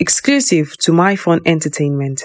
exclusive to MyFun Entertainment.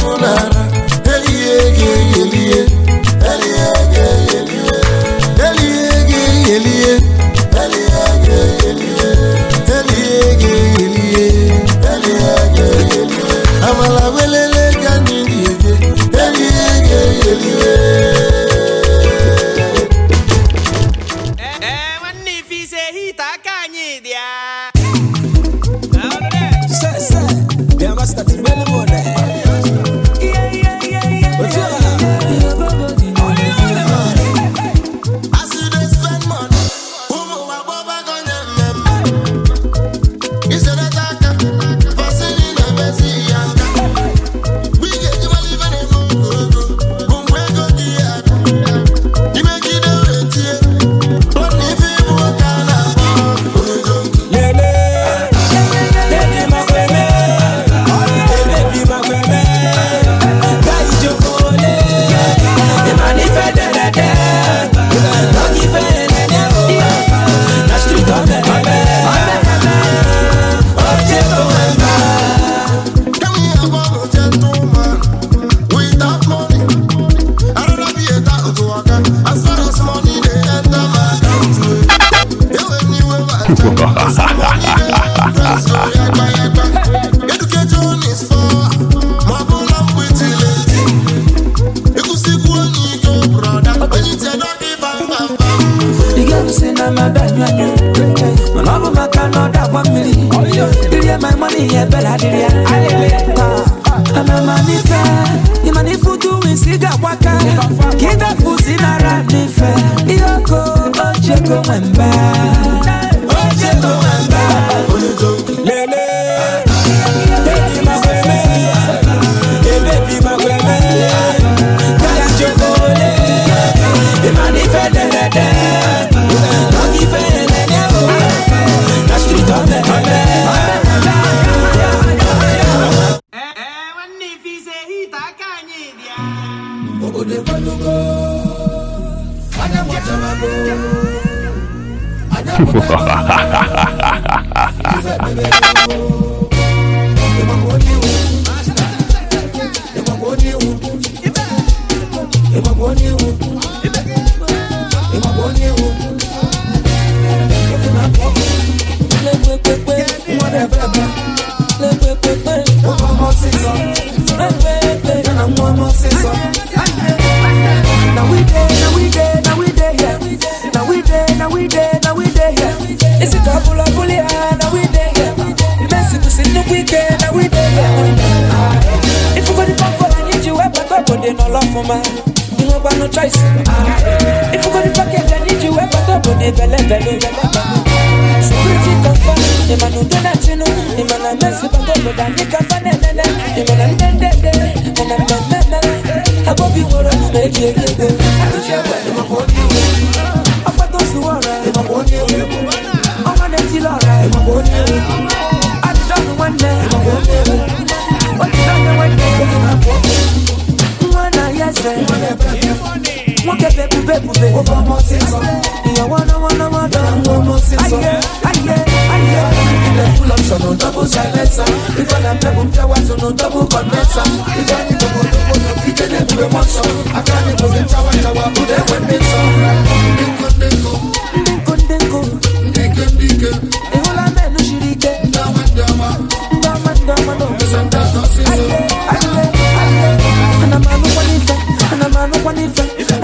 ụnara elie ga-eyelie Ha ha ha ha ha ha ha. for my You know got no choice ah. If you got the package I need you Where but up on the belly belly Security confirm The man who do bube bube bube. Over my season. Yeah, wanna wanna wanna. Over my season. Aye aye aye.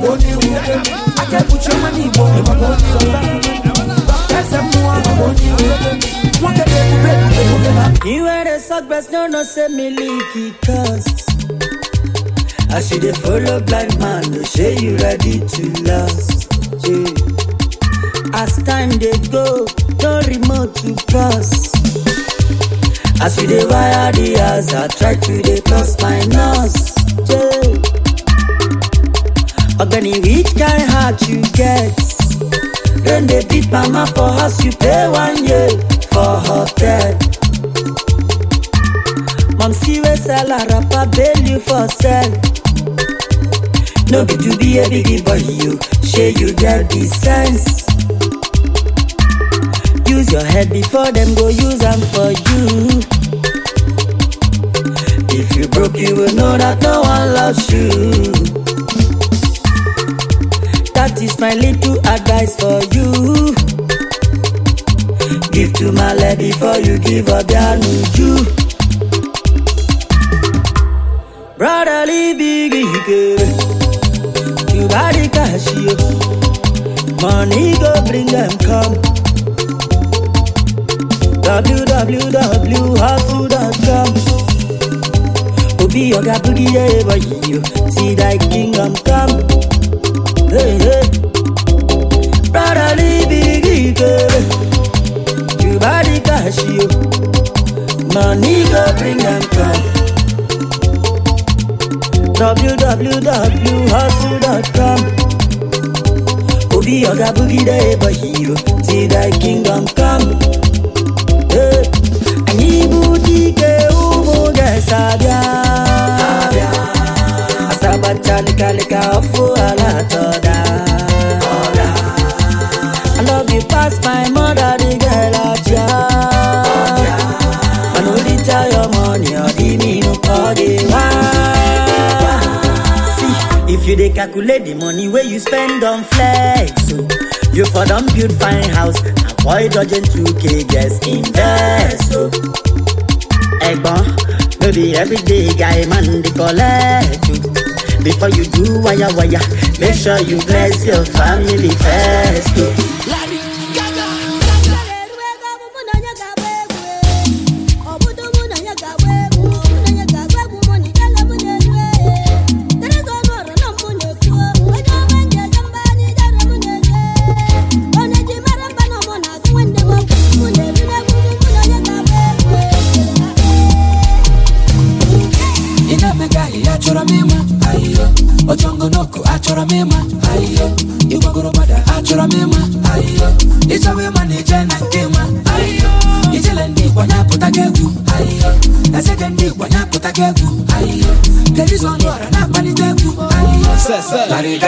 maka onye iwu aka ekpuchi ọma n'igbo maka As you dey follow blind man, no say you ready to last. As time dey go, no remote to cross. As you dey wire the house, I try to dey cross my nose. ogani which kind heart you get rain dey beat mama for house you pay one year for hotel mom see wey sell her wrapper bail you for sell no be to be a big boy you shey you get the sense use your head before dem go use am for you if you broke you will know that no one loves you that is my little advice for you give to male before you give obianuju brotherly big ikere tubari o, money go bring them come www.hustle.com obi ọga bụrụ ihe ebaghị iyo ti thy kingdom come hey, hey. parali bigi girl you body cash you money go bring am come www.hustle.com eh, obi oga bugide ebo hero till thy kingdom come anyị bụ dike ụmụ ga-esabịa asaba chalịkalịka ọfụ ala atọ pass my mother the girl aja i no dey tell your money or the me no call see if you dey calculate the money wey you spend on flex so you for don build fine house avoid dodging 2k guests invest o. ẹ̀gbọ́n no be everyday guy man dey collect o. before you do waya waya make sure you bless your family first o.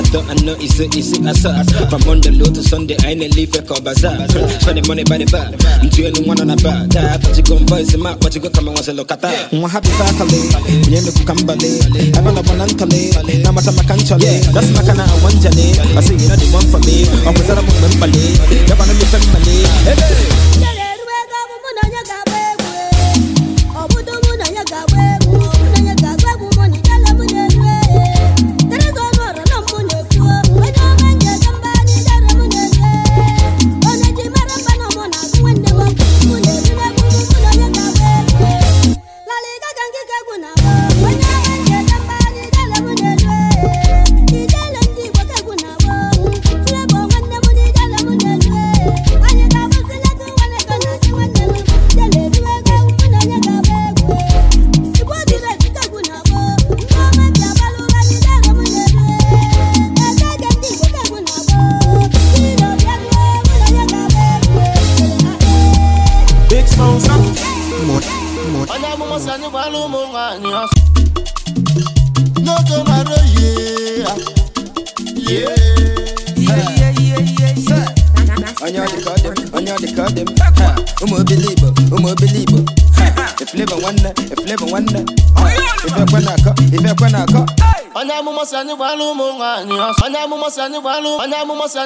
I thought I know it's a easy From Monday low to Sunday, I ain't leave a call money by the bar. I'm doing one on a bar. That you gon' voice him out, but you go come and once a look Mwa happy kukambale. na bonantale, na mata makanchale. That's makana awanjale. I say the one for me. na mifembale. Hey, amụma si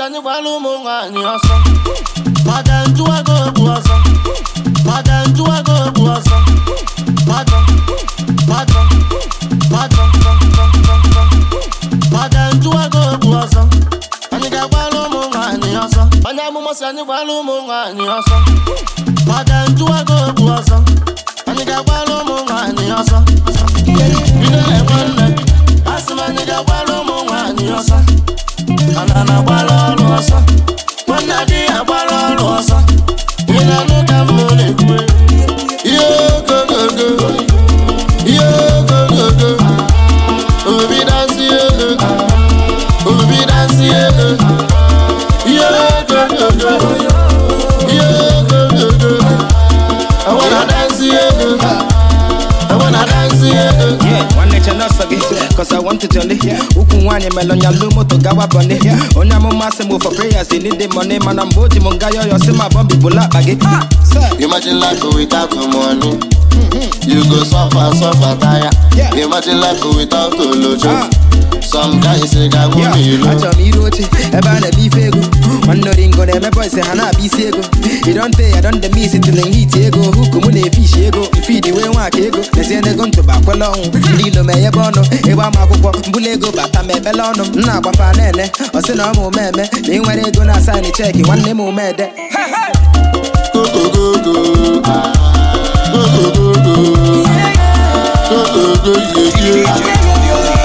anyị gbalụ onye ụmụ nwaanyị ọsọ maka bụ ọsọ nwere ọnyalụ moto gawa bọnihia onye amụma sị for prayers they need the money mana mgbe o ji m nga yọyọ si ma bọmbi bụla akpa gị Imagine life without money, you go suffer suffer tire. Imagine life without olojo. achọrọ m iru oche ebe a na-eme ife ego nwanneoringo na-emebe ise ha na-abịa isi ego idonte ya don dem isi tili hit ego huku mụ na-efe ishi ego mfidi wee nwa ego mezie n'ego ntụba kwele ọnwụ ndị ilo ma enyebe ọnụ ịgba ama akwụkwọ mbụla ego bata ma ebele ọnụ m na-agbafa na-ene ọsị na ọma omeme na nwere ego na asaịnị cheki nwanne m omede Yeah,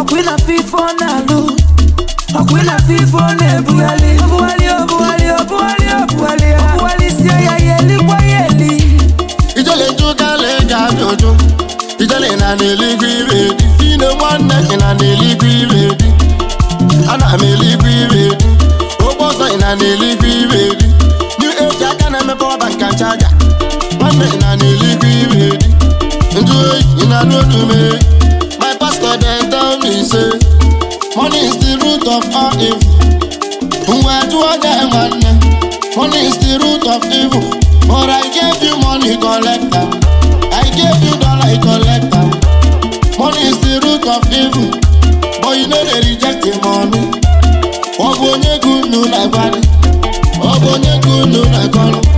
ọkụ ịna-afụ ife na-alụ ọkụ ịna-afụ ife ọ na-ebugharị obugharị obugharị obugharị obugharị ya obugharịsie ya ya elikwa ya eli ijele jụgala eji abịa ụjụ ijele na n'eluigwe ibe di fine nwanne ị na n'eluigwe ibe di ana m eluigwe ibe di ogbe ọzọ na n'eluigwe ibe di new age aka na-emepe ọba nka chaja nwanne ị na n'eluigwe ibe di njụ oyi ị na n'otu mee pastor dem tell me say money is the root of all evil ngwa jụọ dem nwanne money is the root of evil but i gave you money collector i gave you dollar collector money is the root of evil but you no dey reject the money ọ bụ onye gị unu na-agbalị ọ bụ onye gị unu na-agbalị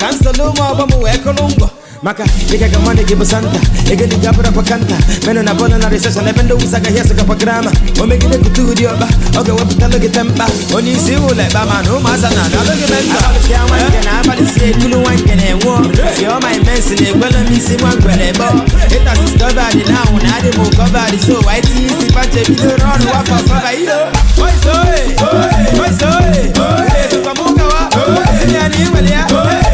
kansụlụ ụmụ ọgbọ m wee kụrụ ngwọ maka ịga ga gị bụ santa ego dị gabara pakanta menụ na bọna na riseshọn ebe ndị wụsa agaghị esokapa grama o megide kute ọba ọkpa ọ ga ewepụta gị tempa onye isi ụlọ ekpa ma na ụmụaza na adalụ gị menta ekulu nwa nke na-enwe ọma imensi na ekwela m isi nwa ngwere bọ discovered na ahụ na adị m covered so isi wafọ ya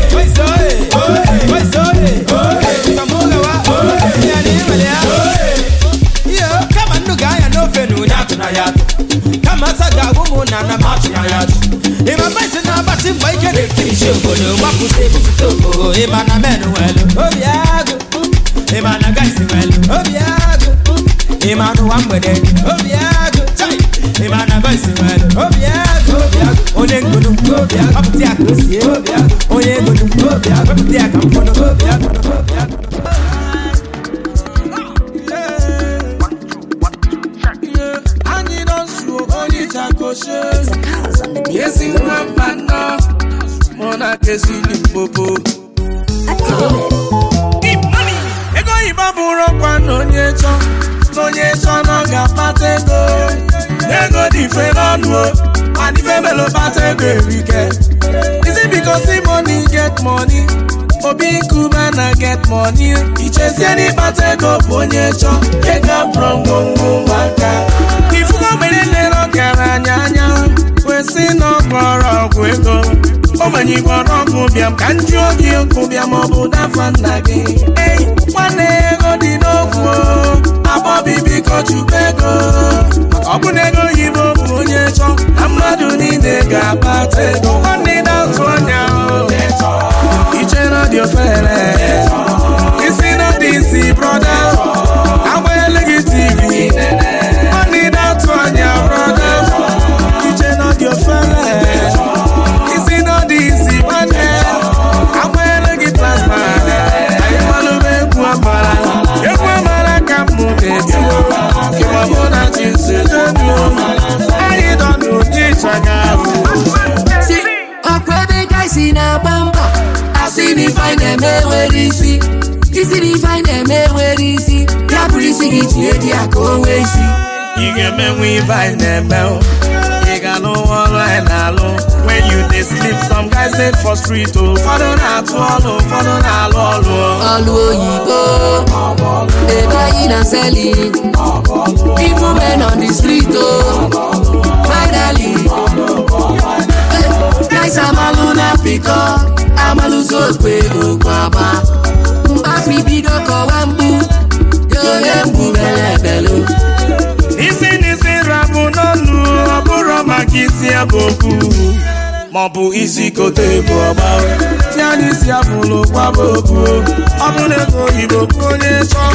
na na march na ya ịma na mgbe ike na-ekirichi obodo gbapụta ebupụta obodo na men welu obi agụ na guys welu obi agụ ịma na na boys welu agụ onye ngunu gbapụta ya ka o sie onye ya ka ntakoshe na onye chọ na onye chọ na ọga ego dị ife n'ọnụ mana ife melo kpata ego erike isi bikosi money get money obi na get money ichezie n'ịkpata ego bụ onye chọ ego ngwongwo maka ogbenye na-ere ọgaranya anya kwesị na ọgbọrọ ọgwụ ego ogbenye igbo ọkụ bịam ka nju oge ụkwụ bịam ọ bụ dafa nna gị ei nwanne ego dị n'okwu abọbi biko chukwu ego ọ bụ na ego oyibo bụ onye chọ na mmadụ niile ga abata ego na-enwere isi isi na ife anyị na-eme enwere isi ya bụrụ isi gị tinye dị ya ka o nwee isi ị ga-emenwe ife anyị na-eme ị ga n'ụwa ọrụ anyị na-alụ when you dey sleep some guys dey for street o ụfọdụ na-atụ ọlụ ụfọdụ na-alụ ọlụ ọlụ oyibo ebe anyị na seli even men on the street o finally Eze amalụ na pịkọ amalụzi okwe okwu agba mgbafi bido kọwa mgbu onye mgbu bere ebelu isi n'isi rapụ n'ọnụ ọ bụrụ maka isi abụ okwu maọbụ isi kote bụ ọgba ya n'isi abụlụ kwaba okwu ọ bụrụ ego oyibo bụ onye chọọ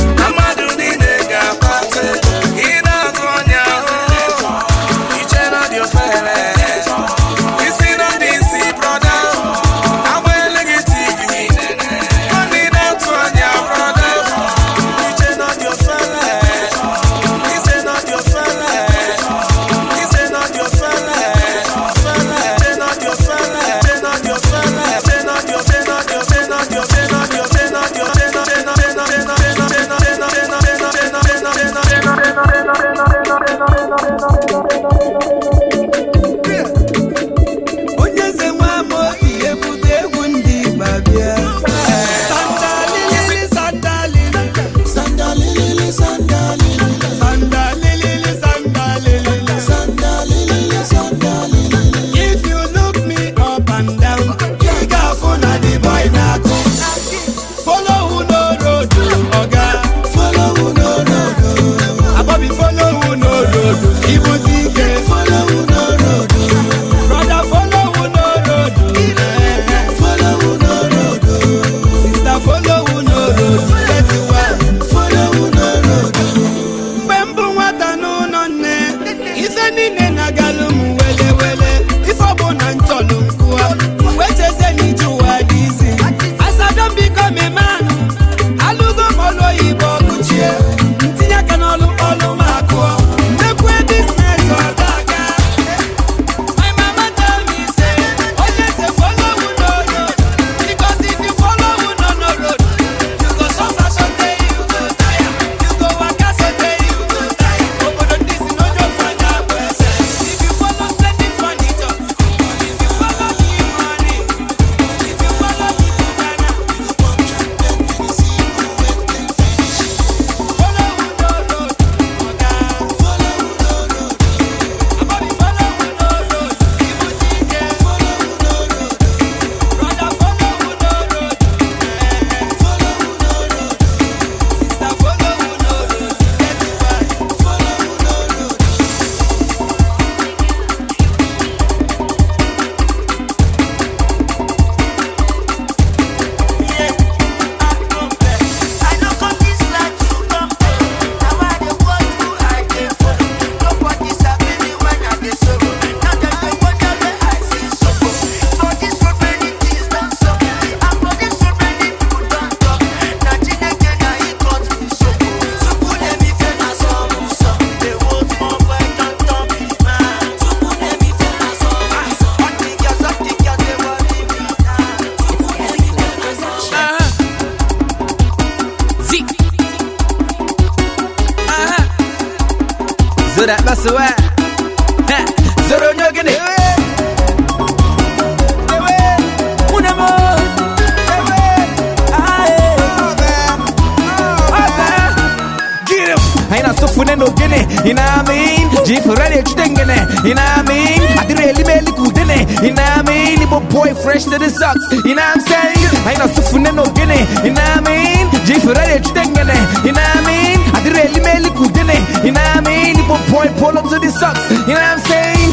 stinging it. You know what I mean? I did really really good in it. You know what I mean? boy fresh to the socks. You know what I'm saying? I ain't no suffering no You know what I mean? for stinging it. You know what I mean? I did really really good in it. You know what I mean? boy pull up to the socks. You know what I'm saying?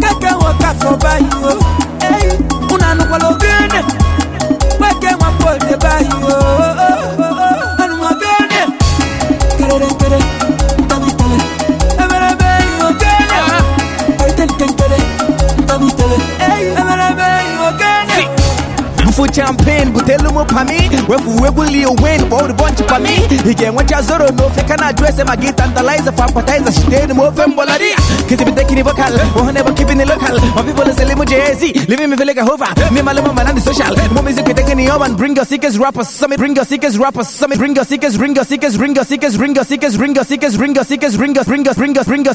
Waka waka for champagne butelu m pami wefu uwe bulie wen kpọọ ribonchi pami ị ga-enwecha zoro n'ofe ka na-ajụ ese ma for appetizer shitenu m ofe mgbọlari kizibite kini vocal ohun ebo kibini local my people is elimu jz living me like a hover me maluma malandi social mo music take any urban bring your rappers summit bring your rappers bring your your your your your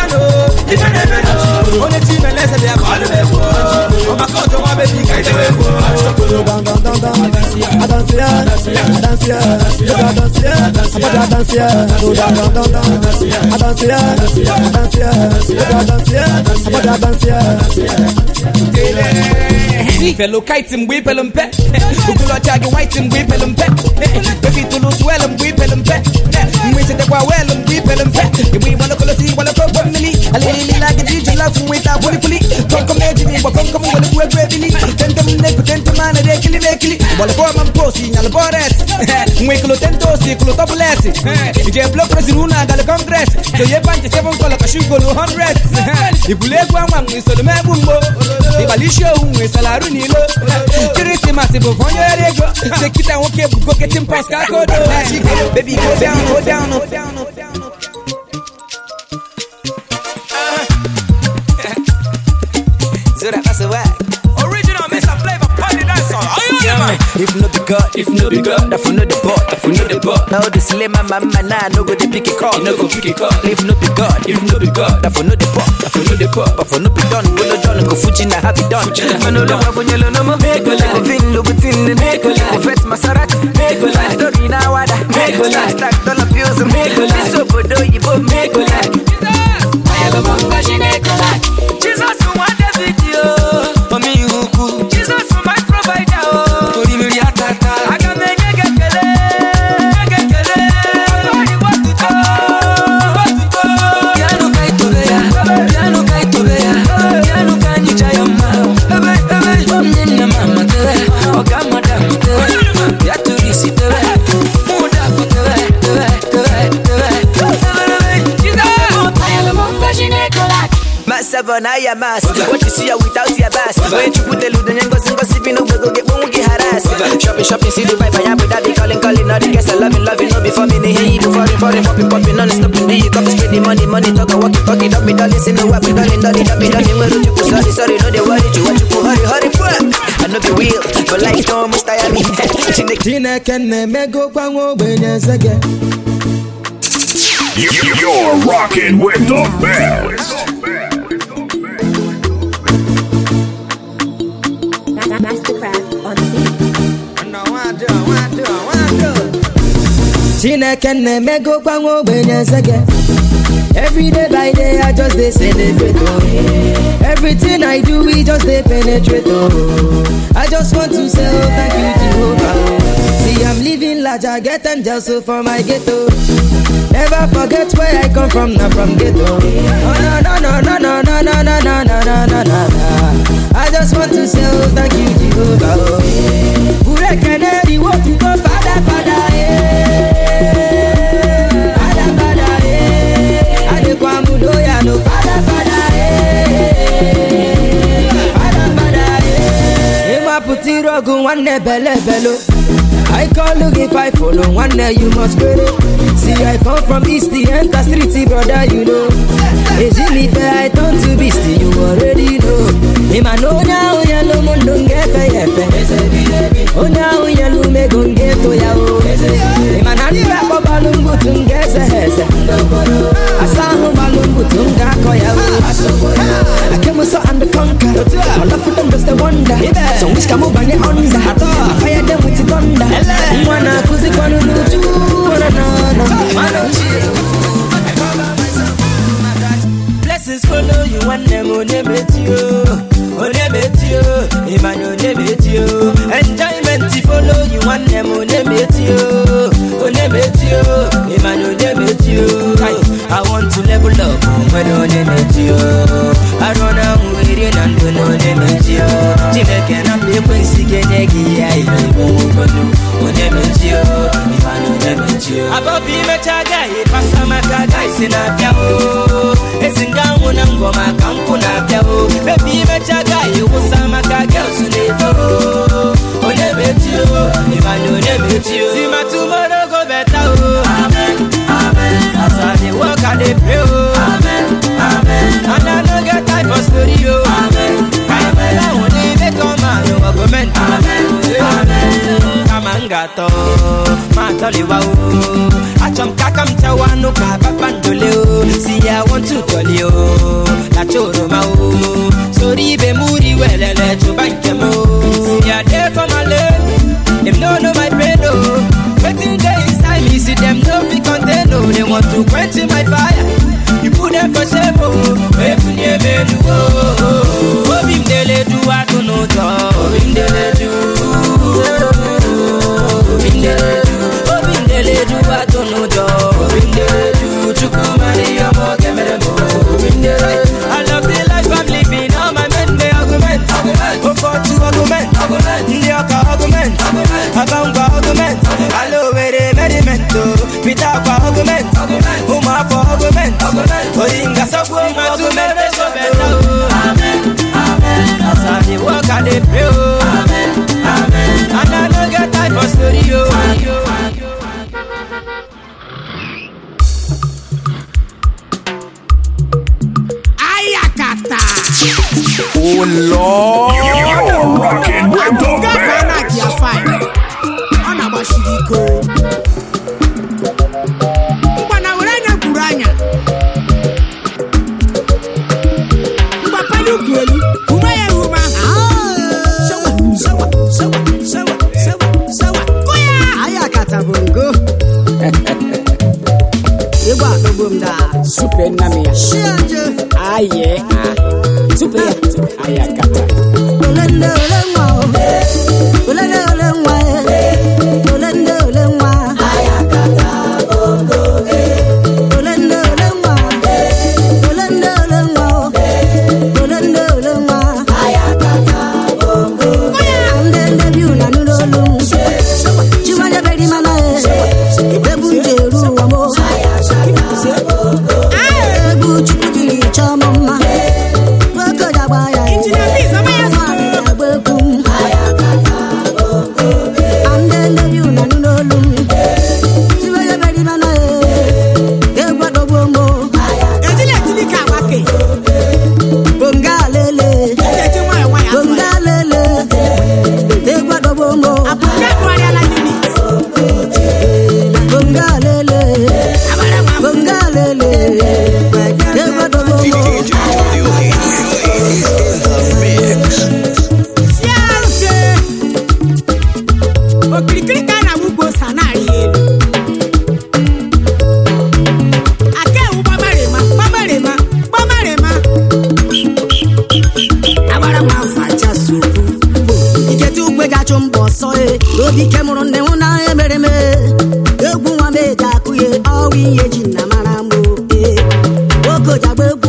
dano ife na-eme na onye chi mele eze bịa bọọlụ egwu ọmaka ọjọ nwa be dị ka idebe egwu I don't see Fellow kite mgbe ipelu mpe ogolocha gị mgbe ipelu mpe efi tụlụ swel mgbe ipelu mpe mgbe isetekwa mgbe mpe igbe igbalokolosi igbalokọ ụgbọ mmiri alilila gị ji iji lafu nweta kwulikwuli kọnkọm ejiri igbo kọnkọm welekwu egwu ebili a ekili na ekili gbalụbọ ma mpe osi nyalụbọ res seven anwa mgbo Ọkpalisha ohun salarụ n'ilo Kirisimasi bụ onye ọrụ ego Sekita nwoke bụ goketin pas ka Baby go down, go down, go down, mama. If not the God, if not the God, if not the if not the Now the nah, no no go If not the God, if not the God, if not the if not the no go fuji na happy done. I know the no more. Make a look at make a fetch Make a story now, wada. Make a stack make a never now your mask. What you see her without your bass. When you put the loot and gossip, gossip, you know, go get get harassed. Shopping, shopping, see the vibe, I am without be calling, calling, all the guests, I love it, love it, no before me, they hear you, foreign, foreign, popping, popping, non stop, do you come spend the money, money, talk, walk, talk, it up, me, darling, see no wife, darling, darling, darling, darling, where you sorry, sorry, no, they worry, you want you chineke na-emego gbanwe ogbenye eze gị everyday by day i just dey celebrate oh everything i do we just dey penetrate oh i just want to say oh thank you jehovah oh see i'm living large i get angels oh, for my ghetto. Never forget where I come from, not from ghetto. Oh no no no no no no no no no no no no no. I just want to say oh, thank you Jehovah. Ure keneri wo tu ko fada fada eh. Fada fada eh. Ade kwa mudo ya no fada fada eh. Fada fada eh. Ema puti rogu wane bele belo. I call you if I follow one day you must get it. See, I come from east, the street streety, brother, you know. Ejilife, I turn to beast, you already know. Ima no na oya no mo no ngefe yefe. Ona oya no me go ngeto ya o. Ima na ni bako balungu tungeze hese. Asahu balungu tunga koya o. Akemu so and the conquer. All of them just a wonder. So I fire them with the thunder. no, no. Blessings follow you them onye bet onye bet you, Iman Enjoyment follow you them onye onye I want to level up nwere onye na-eji arụ na nwere na ndụ na onye na Chineke na mba ekwensi ga-enye gị ihe ihe bụ na ịba na onye na-eji abọbụ imecha agaghị pasa maka agaghị si na-abịa esi nga nwụ na ngwọ maka nkwụ na-abịa bebi imecha agaghị wụsa maka gels na-eto onye na ịba na work i dey pray oh amen amen and i no get time for story oh amen amen i wan dey make all man no amen amen m ga-atọ ma atọliwa o achọ ka aka o si ya wọntu o o sori o si ya dee o wetin dey Elise them no be content no They want to quench my fire You put them for shame oh oh Obi mdele du atono Obi mdele du Obi mdele du Obi mdele du atono Obi mdele du chukwu ọsọ e obi ike mụrụ nne nwụ na emere m egwu nwa m eji akụ ya ọwa ihe ji na mara m oke okojagba egwu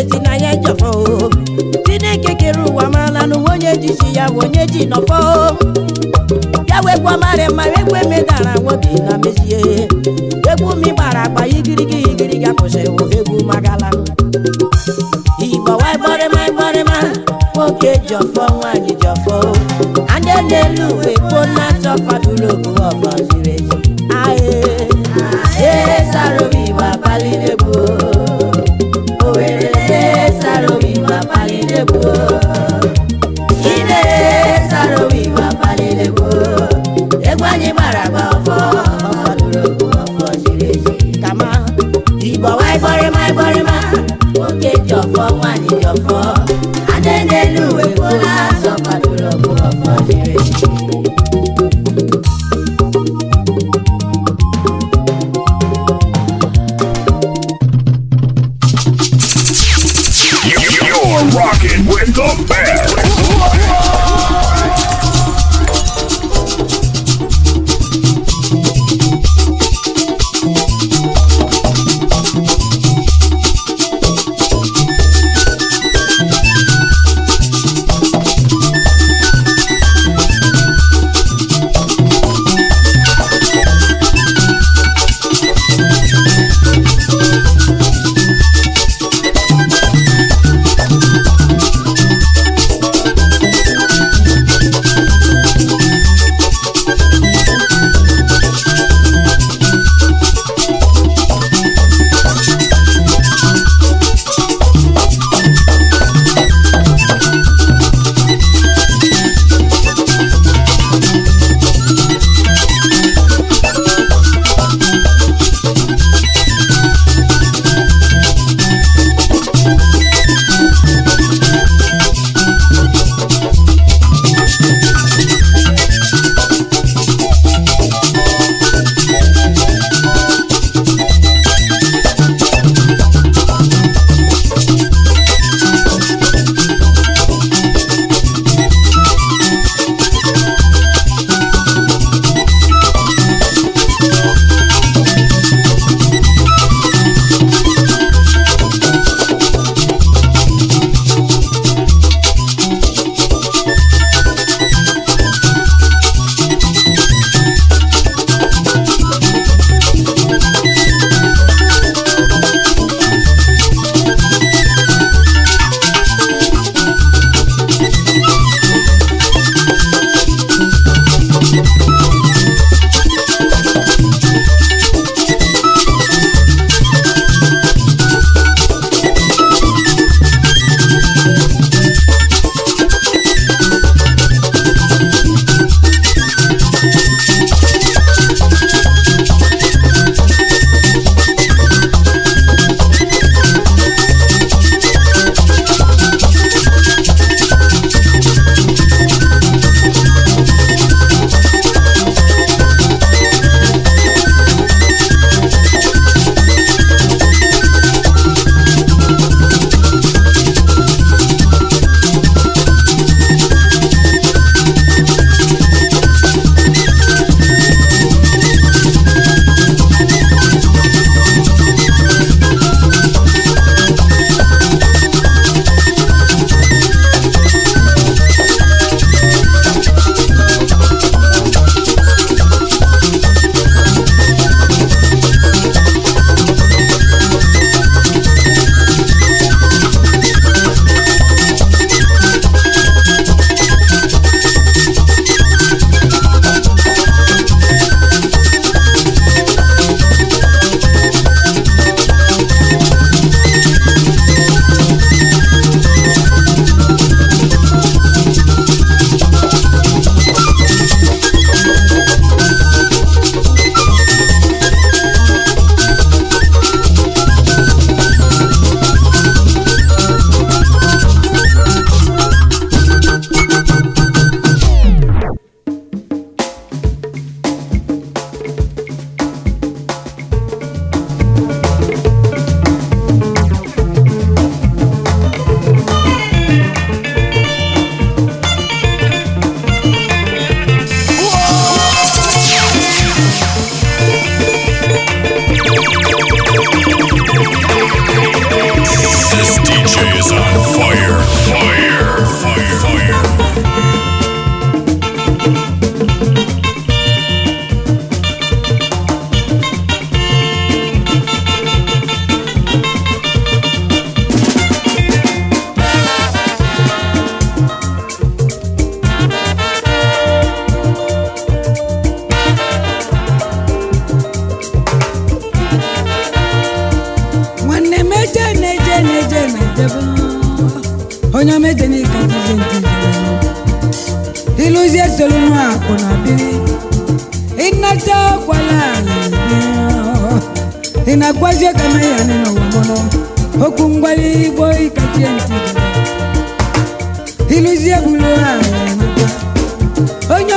onye ji na ya njọfọ chineke kere ụwa maala n'ụwa onye ji chi ya bụ onye ji nọfọ ya wekwa mara mma ekwe medara nwoke na mezie egwu m gbara agba igirigi igirigi akwụsịrị egwu magala igbo waigbọrịma igborịma nwoke ji nwanyị.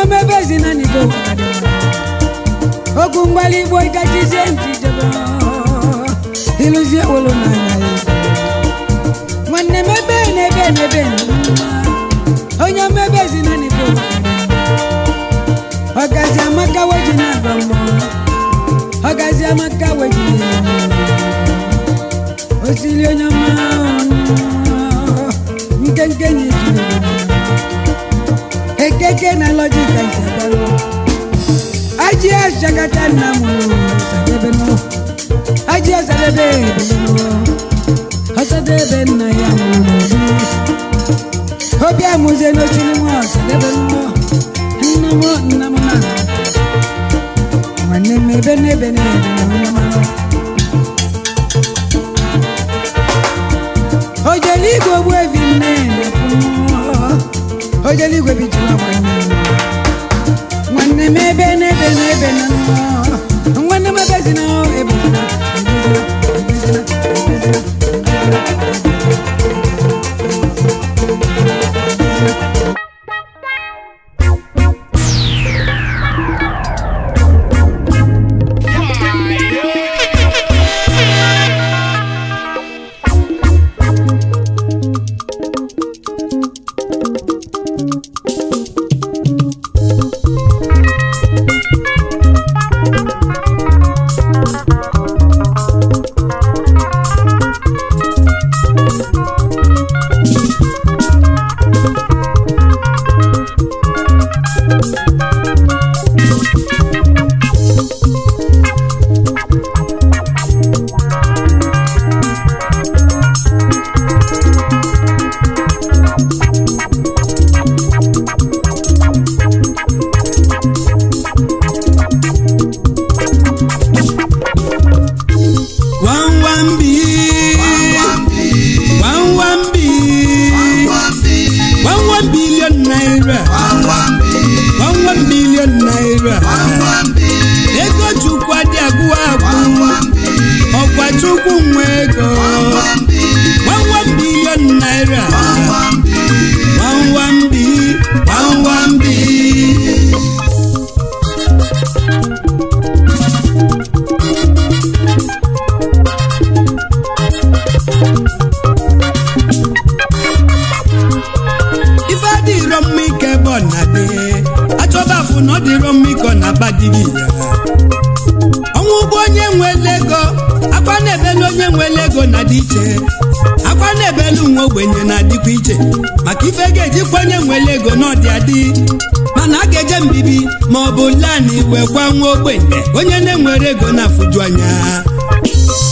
na-eme ebe ezina n'igbo mgbali igbo wolo n'anya ya nwanne m ebe n'ebe n'ebe onye mmebe ezina n'igbo ọgazi amaka weji na-agba mbọ amaka weji osiri onye mma ekeke na lọjika Aji ajị ashakata nna m sadebe nọ ajị asadebe ebelọ ọsadebe nna ya nwụrụ n'obi obi amụzie n'otu n'ime ọsadebe nọ nna m nna m na nwanne m ebe n'ebe n'ebe na onye mara o jere igwe ogbu evi nne na-ekwu nwa onye eluigwe nwanne m ebe na-ebe na-ebe nwanne m ebe na ebe chukwu nwe ego dịkwa onye nwere ego n'ọdị adị mana a ga-eje mbibi ma ọ bụ lanị wee gwa nwa ogbenye onye na-enwere ego na-afụju anya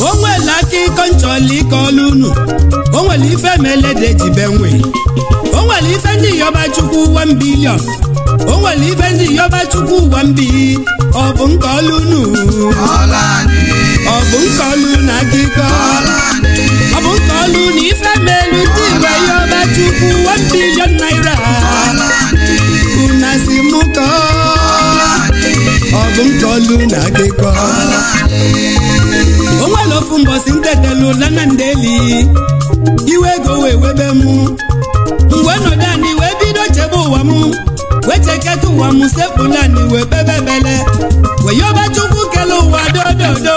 o nwere aka ịkọ nchọla ike ọlụ unu o nwere ife melede jibe nwe o nwere ife ndị yọba chukwu ụwa mbilion o nwere ife ndị yọba chukwu ụwa mbi ọ bụ nke ọlụ unu ọ bụ nke ọlụ na akụkọ ọ bụ nke ọlụ na ife melu ndị igwe yọba chukwu ụwa mbilion akụkọ ọ bụ m kọlụ na akụkọ o ofu mbọsi ntetelu lana ndeli iwe ego wee webe m mgbe nọdụ anyị wee bido chebe ụwa m wee cheketa ụwa m sepụlani wee bebebele wee yọba chukwu kele ụwa dododo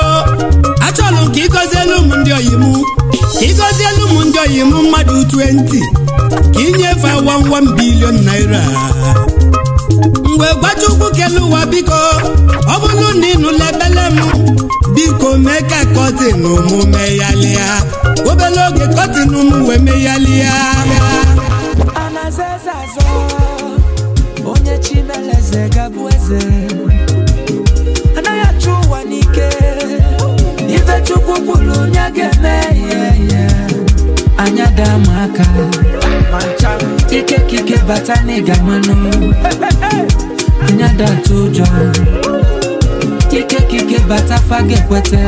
achọlụ ka ịgọzielu m ndị oyi m ka ịgọzielu m ndị oyi m mmadụ 20 ka inye awa nwa m bilion naira mgbe gwachukwu kele ụwa biko ọ bụrụ na ịnụla ebele m biko mee ka kọtin mụ meghalịa obere oge kọtị n'ụmụ wee meghalịa onye chimeleze gabụ eze anaghị achụ ụwa n'ike ife chukwu kwuru onye ga-eme ihe anya daa m aka ike ike bata na ịga mmanụ anya ụjọ ike ike bata faga ekweta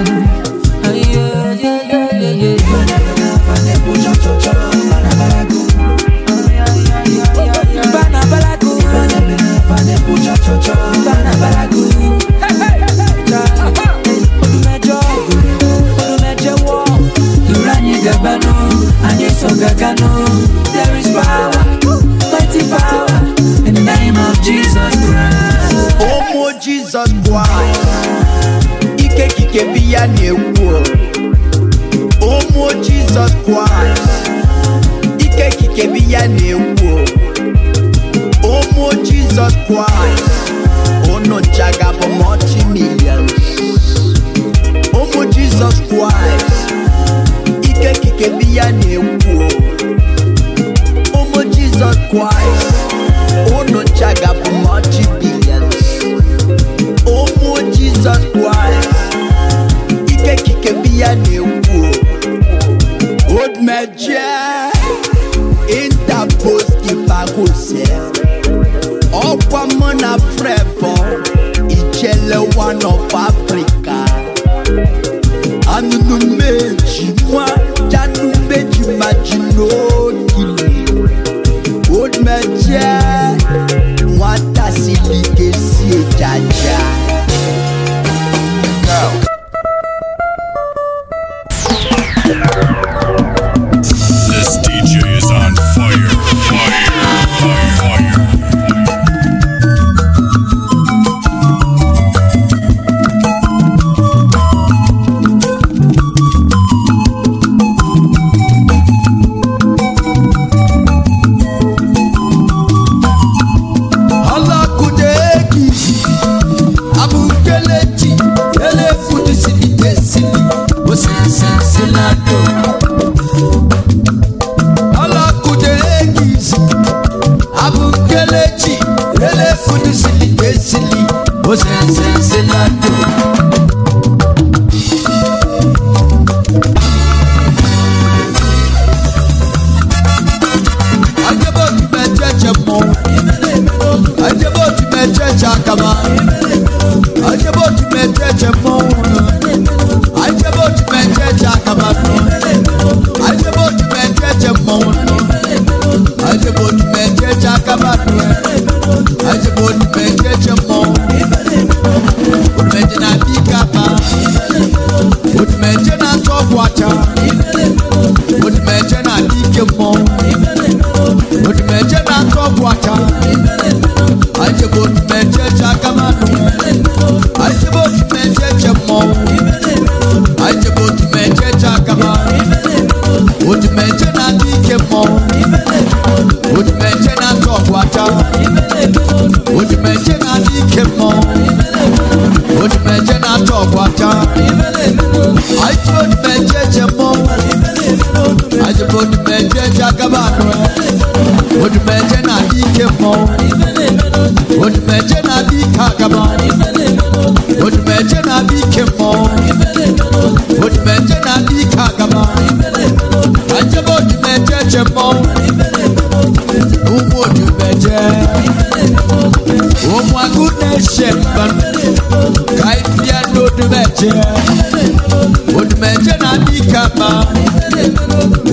odumeje na-adị ike mma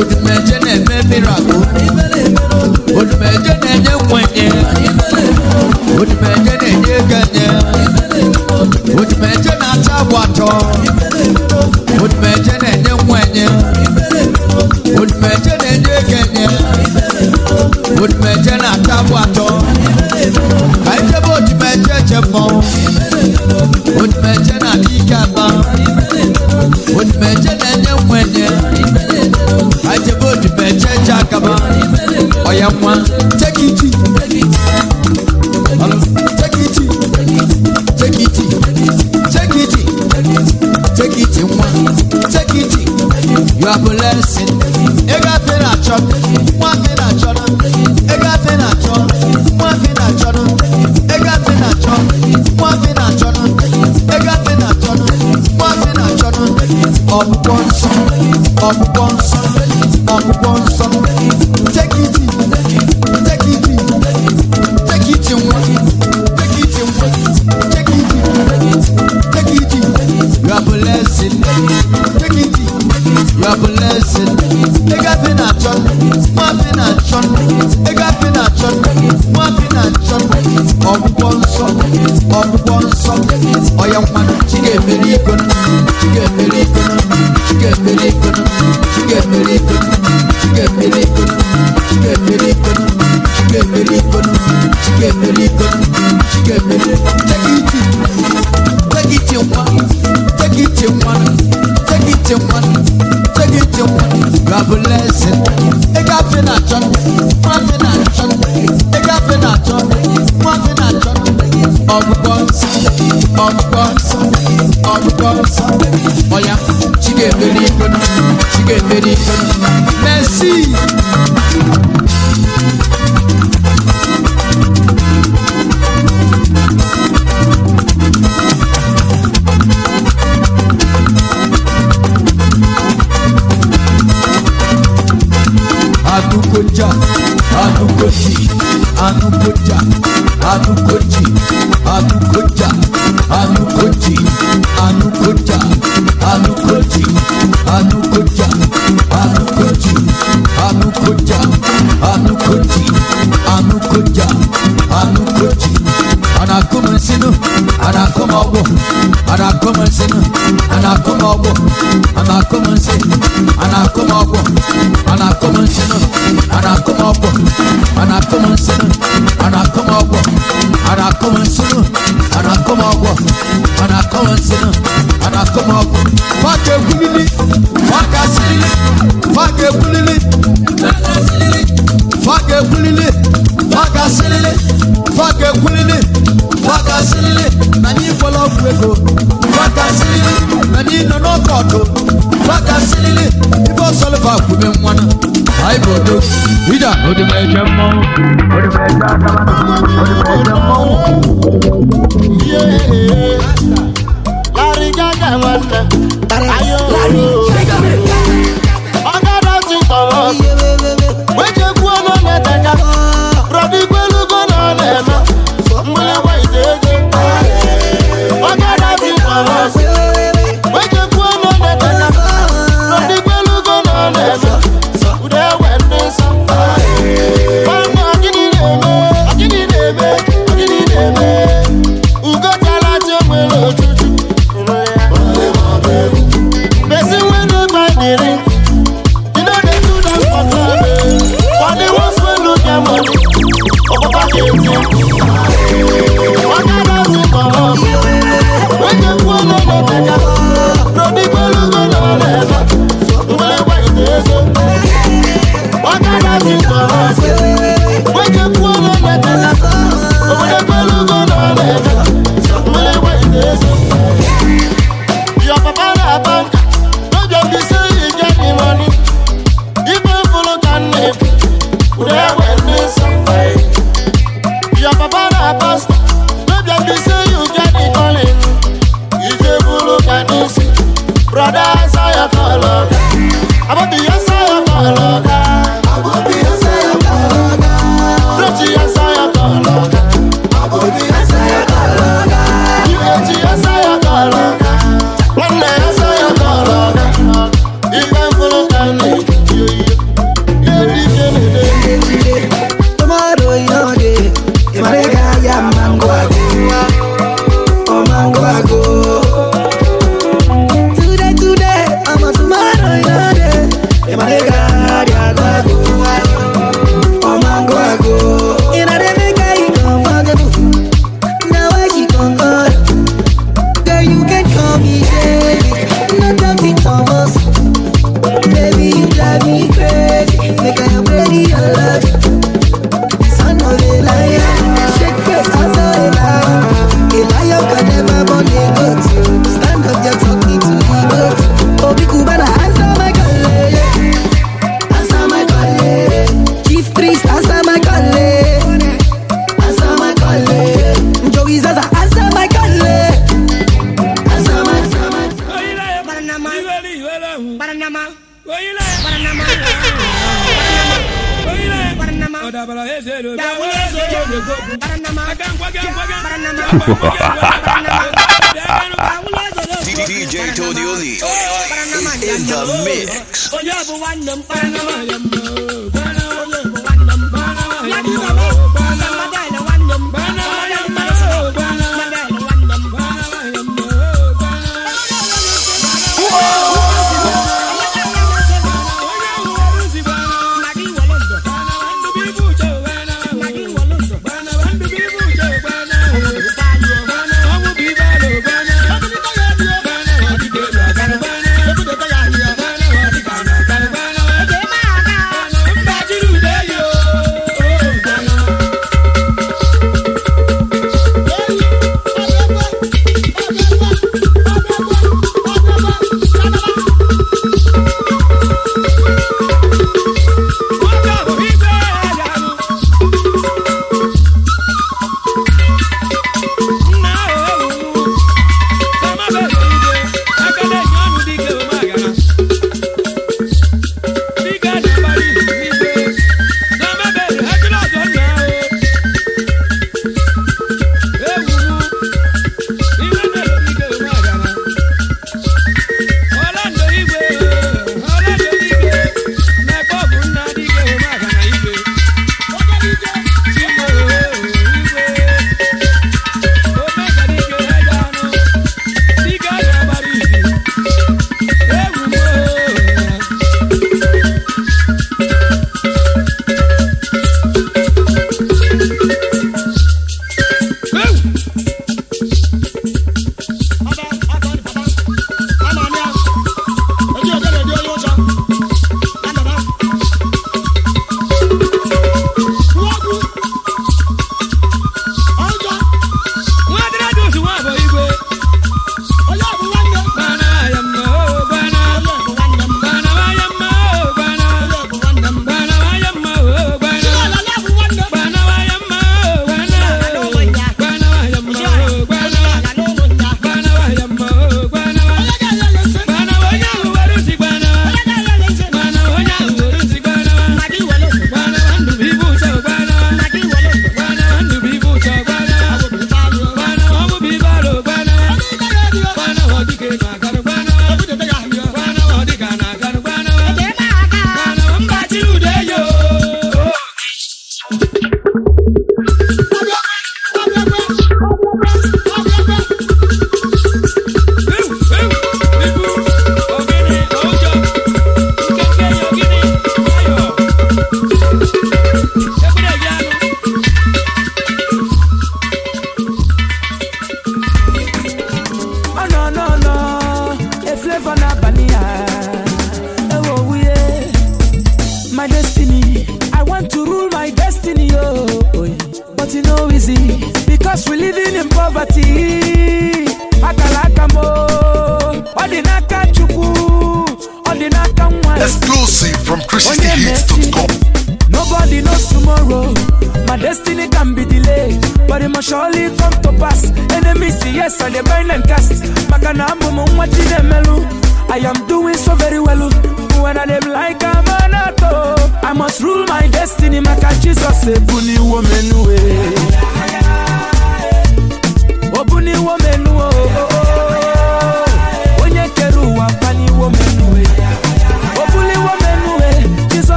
odumeje na-eme miracle DJ Tony Oli in the mix.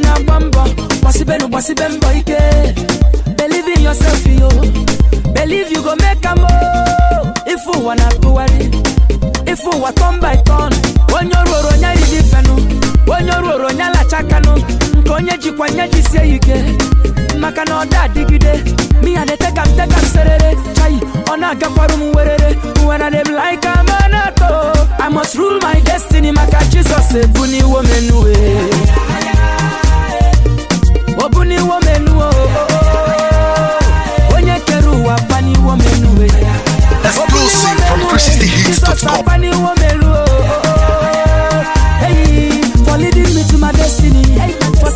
ọ na-agba mbọ gbasibenu gbasibe mbọ ike believe in yourself yo believe you go make am ife ụwa na-atụgharị ife ụwa turn by turn onye ọrụ ọrụ onye riri ifenụ onye ọrụ ọrụ onye alachakanụ nke onye jikwa nye jisie ike maka na ọ da adịgide miya na-ete ka m te ka m serere chai ọ na-agakwara m werere when I dem like am anato I must rule my destiny maka Jizọs ebuniwo m enuwe ọ bụ n'iwe onye kere ụwa paniwe omenuwe ọsọsọ paniwe omenuwe eyi for leading me to my destiny for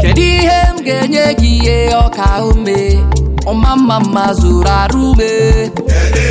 kedu ihe m ga-enye gị ihe ọka ume ọma mma mma zụrụ arụ ume kedu ihe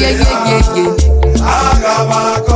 yeah, yeah, yeah, yeah.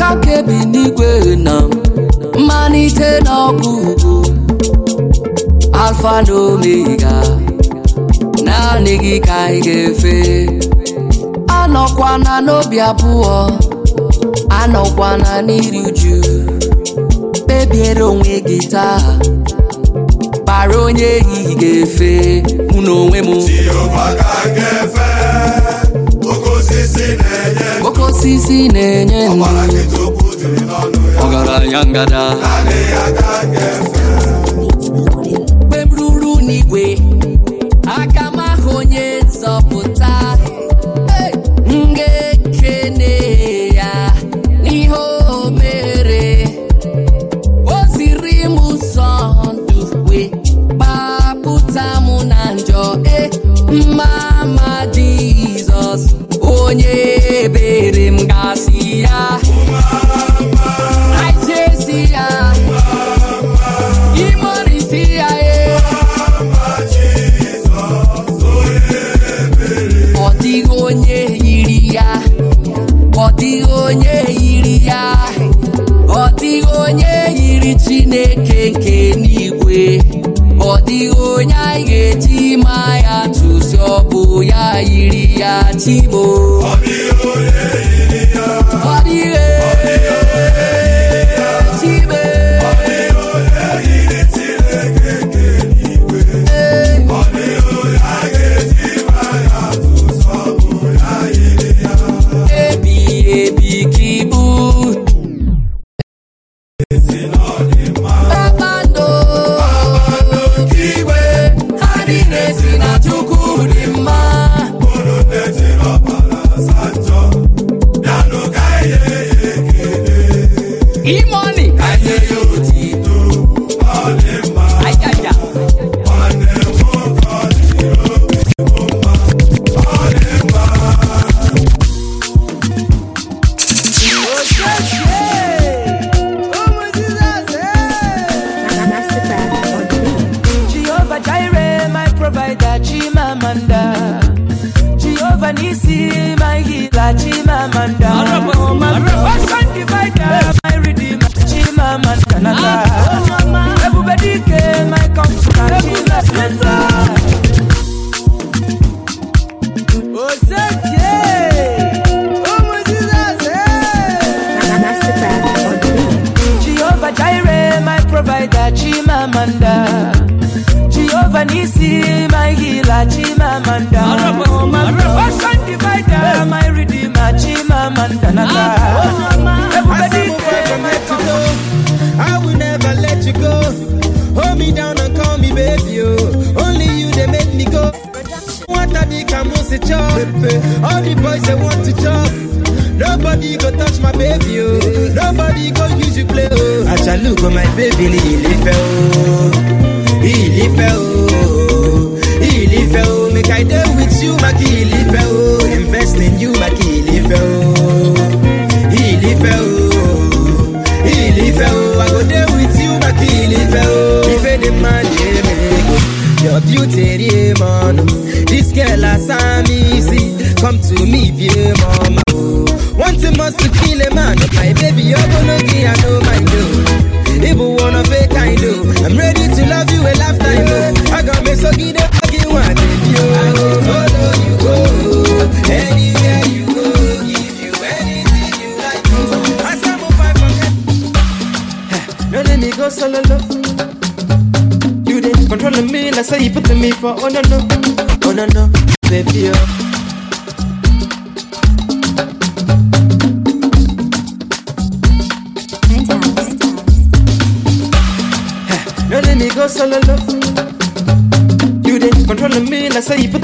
aka nke bi n'igwe na mmalite na alfa na omega naanị gị ka anyị ga-efe anọkwana n'obi abụọ anọkwana n'iri uju kpebiere onwe gị taa kpara onye ehihie ga-efe mụ na onwe m osisi na-enye nri ọgaranya ngada Igbo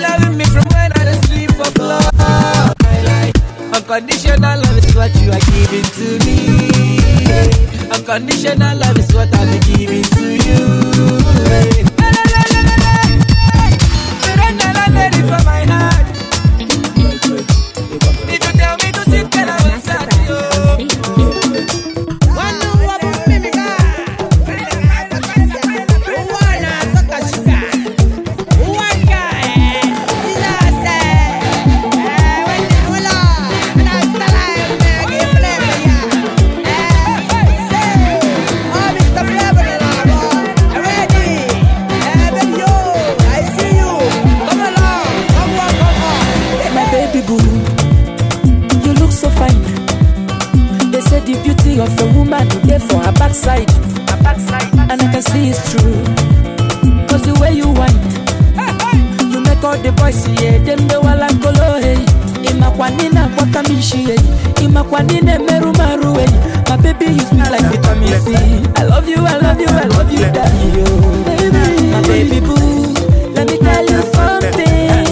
loving me from when I don't sleep for floor. Like, unconditional love is what you are giving to me. Unconditional love is what I'm giving to you. Hey. Hey. Hey. Hey. Hey. Hey. Hey. Hey. a backside, a backside, and I can see it's true. Cause the way you whine, you make all the boys yeah, them the wala kolo hey. Imakwa nina kwa kamishi hey, imakwa nina meru maru hey. My baby you sweet like vitamin C. I love you, I love you, I love you, daddy Baby, my baby boo, let me tell you something.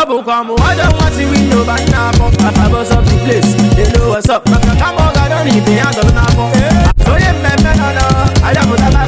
ọ bụkwa mụwada nwazi winye ụba nna abọ abọzọ the place they what's up kama ọ ga-adọ na ibe ya dọrọ n'afọ onye mmemme nọ nọ adapụtala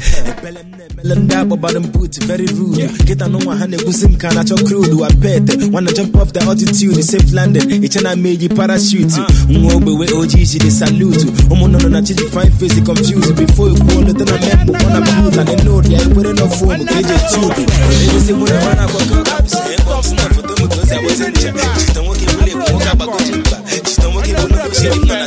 ekpere m na-emele ndị akpọbara m put very rude nkịta n'ụwa ha na-ekwusi m ka crude wa pet wanna jump off the altitude safe landing iche na meji parachute nwa ogbewe ojii jiri salute ụmụnnụnụ na chiji fine face confused before ekwuo leta na membo ọ na bud na nenod ya ekwere na fonu ka eji tube nwere na foto nwoke mba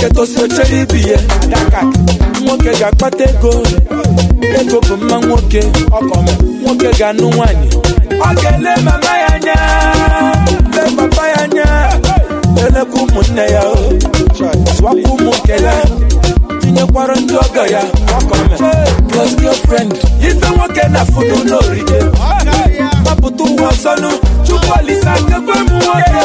nwoke toziochere ibi ya nwoke ga-akpata ego ego bụ mma nwoke ọkọm nwoke ga-anụ nwaanyị. ọ ga-ele mama ya anya le papa ya anya elekwa ụmụnne ya swapụ ụmụ nke ya tinyekwara ndị ọgọ ya close your friend ife nwoke na fụdụ n'orige gbapụta ụwa ọzọnụ chukwu alisa kekwe m nwoke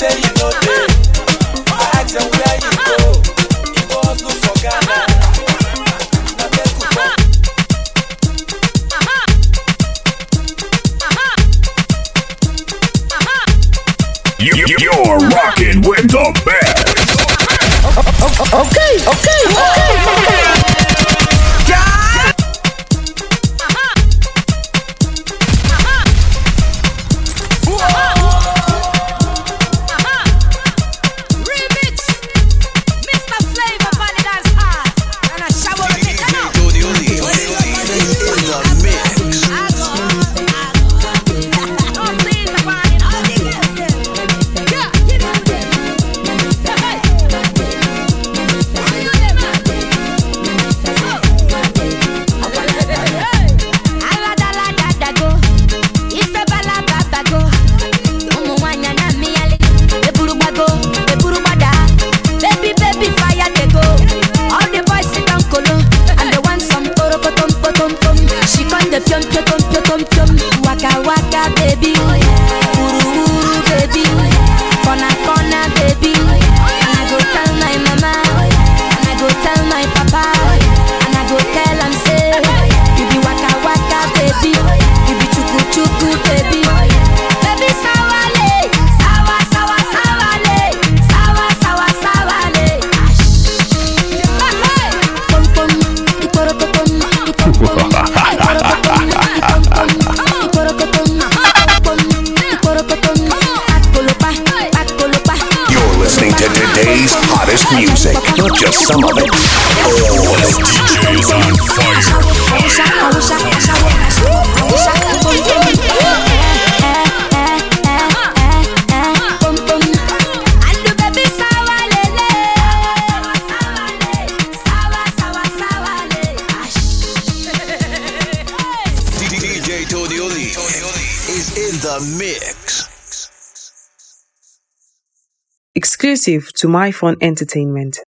baby exclusive to my fun entertainment.